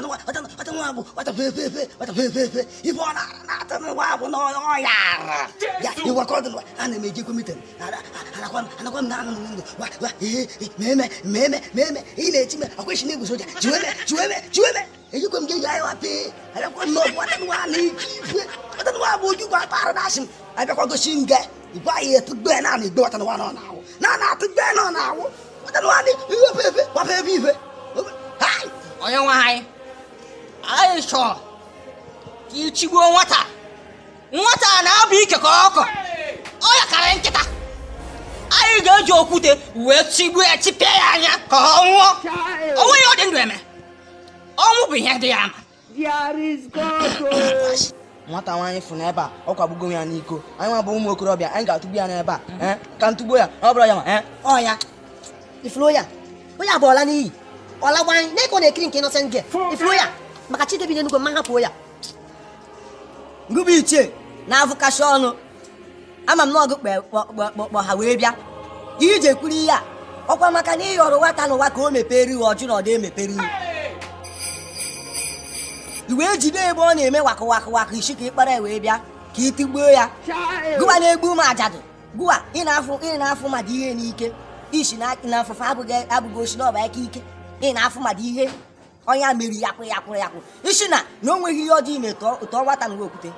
wata wata wata nuwabu wata fefe wata fefe ifo na na ta nuwabu no no ya ya iwa ko dun ana me je komiten ana ana kwa ana kwa na na wa wa eh meme meme meme ile time akweshi ne gusoja jiweme jiweme jiweme èyí kò ń jẹ́ yàrá wa pé ẹ̀rẹ́kọ́ nọ bọ́ ọ̀tẹ́ni wa ní ìjìnlẹ̀ ọ̀tẹ́ni wa bọ̀ ojú kọ́ apára náà sìn ẹ̀rẹ́kọ́ tó ṣì ń gẹ ìgbà yẹ tó gbẹ náà ní ìgbẹ́ ọ̀tẹ́ni wa náà náà wò náà náà tó gbẹ náà náà wò ọ̀tẹ́ni wa ní ìwé fèèfé wà fèèfé ìfẹ́. ọ̀yẹ́ wọn ha yìí aisha ka ichigbuo nwata nwata na-abụ ike ka ọkọ ọ ya kara nkịta anyị ga-eji okwute wee chigbuo ya chipịa ya anya ka ọ nwụọ onwe ya ọ dị ndụ eme ọnwụ bụ ihe dị ya ama nwata nwaanyị fụ n'ebe a ọ kwagbugo ya n'iko anyị nwa bụ ụmụ okorobịa anyị ga-atụgbu ya n'ebe a ka ntụgbuo ya ọ bụrụ ya ma ọ eh. ifuru ya onye abụọla n'iyi ọ lagbanyị na-ekọ na-ekiri nke ịnọsent gị ifuru ya maka Chidiebube Enugo mma hapụ ya ngụba ichie na-avụkacha ọnụ ama m na ọgụ ha wee bịa ihe iji ekwuru ihe a ọkwa maka na ịghọrọ nwata n'ụwa ka o mepere ihu ọjụ na ọ dị emepere ihu iwee jide ebe ọ na-eme wakụ wakụ wakụ isi ka ịkpara wee bịa ka ịtigbuo ya gụwa na-egbu ụmụ ajadụ gụwa ị na-afụ mmadụ ihe n'ike isi na afụfụ abụghị osi na ọba ike ike ị na-afụ mmadụ ihe Onya mere ya kwụ ya kwụrụ ya kwụ isi na na o nweghị ihe ọjọọ ime tụọ nwata na okwute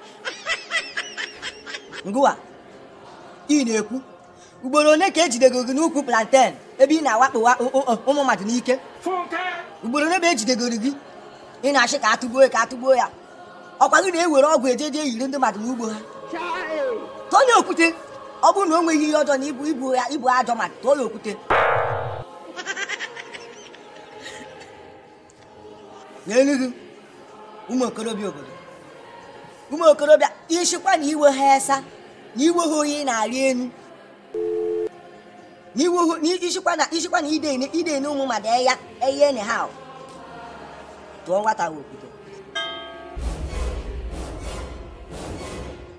ngụwa ị na-ekwu ugboro one ka ejidego gị n'ukwu plantain ebe ị na-awakpo ụmụ mmadụ n'ike ugboro one bụ ejidegoro gị ị na-achị ka atụgbuo ka atụgbuo ya ọkwa gị na-ewere ọgwụ ejeje eyiri ndị mmadụ n'ugbo ha tụọ ya okwute ọ bụrụ na o nweghị ihe ọjọọ na ibu ibu ya ibu ajọ mmadụ tụọ ya okwute n'elughị ụmụ okorobịa obodo ụmụ okorobịa ishikwa na iwe ha esa na iwe ha oyi na-arị enu n'ishikwa na ishikwa na ide na ụmụ mmadụ eya eye enyi ha tụọ nwata okwute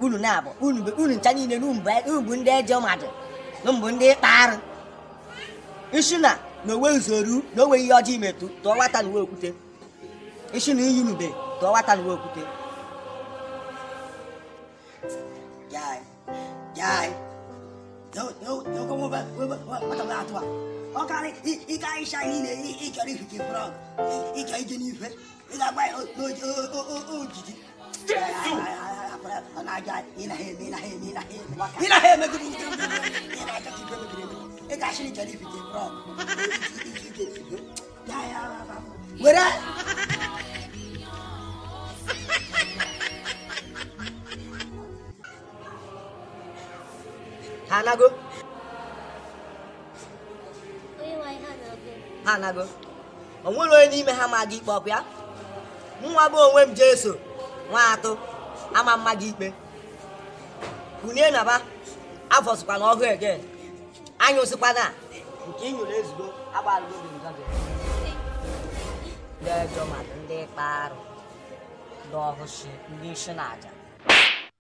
unu na-abụ unu ncha niile n'ubu ndị eje mmadụ mbụ ndị ịkpa arụ ishi na onwe owe na owe ihe ọjọọ imetụ tụọ nwata na uwe okwute eshi na iyi nube ka ọ wata n'uwe okwute jai jai atụ a ọ karị ịka ịsha niile ịchọrọ ifike frog ịchọ ije n'ife ị ga-agba ojiji ị na ha emegiri ị ga-achịrị ịchọrọ ifike frog were hanago ha nago onwere onye n'ime ha ma gị ikpe ọkụ ya nwa bụ onwe m jeso nwa atụ ama mma gị ikpe kunie na ba afọsịkwa na ọhụụ ege anyụsịkwa na nke inyụrụ ezugbo agbalụgo gị ndị ọjọọ mmadụ ndị kpa arụ ndị ọhụshi ndị isi na aja